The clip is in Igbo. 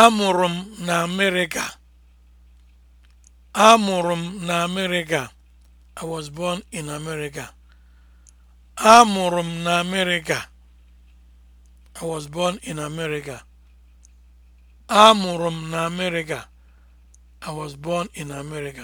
Amụrụ m na Amerịka. Amụrụ m na Amerịka. I was born in America. Amụrụ m na Amerịka. I was born in America. Amụrụ m na Amerịka. I was born in America.